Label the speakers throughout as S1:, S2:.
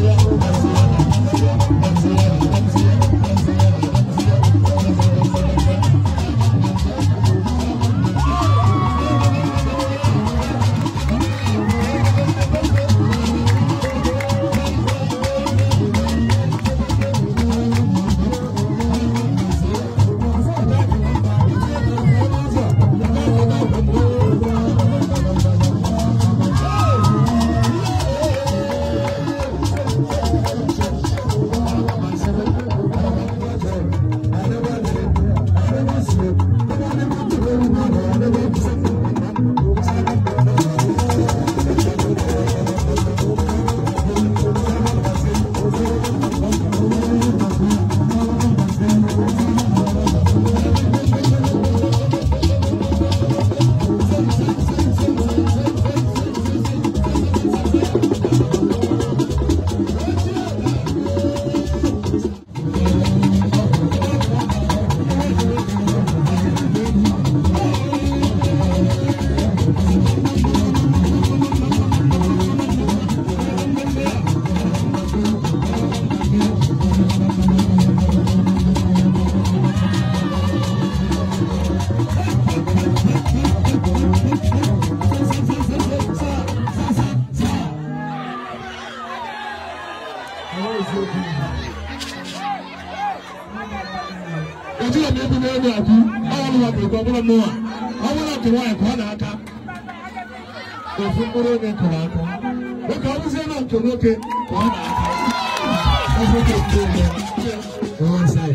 S1: Thank you.
S2: ojú ọ̀nà ebi náà ní àbí báwọn ọmọ àgbègbè ọmọlá nù à ọmọ náà tó wá ẹ̀kọ́ náà ká òfin kúrò ní kọ̀ọ̀ àkọ́ lókè ọmọ náà tó lókè kọ̀ọ̀ náà ká ọ̀fọ̀ tó tó lọ ọ̀hún sáyé.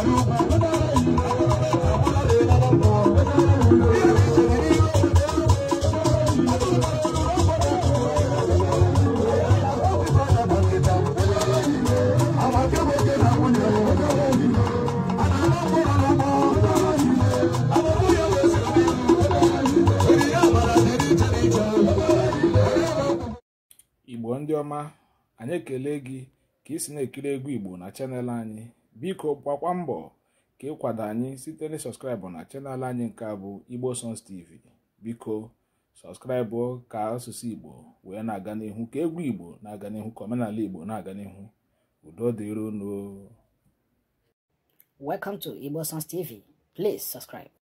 S1: igbo
S3: ndị ọma anyị ekele gị ka ị si na-ekiri egwu igbo na chanel anyị biko gbakwa mbọ ka ịkwado anyị site na sọskraịbụ na chanel anyị nke a bụ igbo tv biko sọskraịbụ ka asụsụ igbo wee na-aga n'ihu ka egwu igbo na-aga n'ihu ka omenala igbo na-aga n'ihu udo dịrono welcome to igbo please subscribe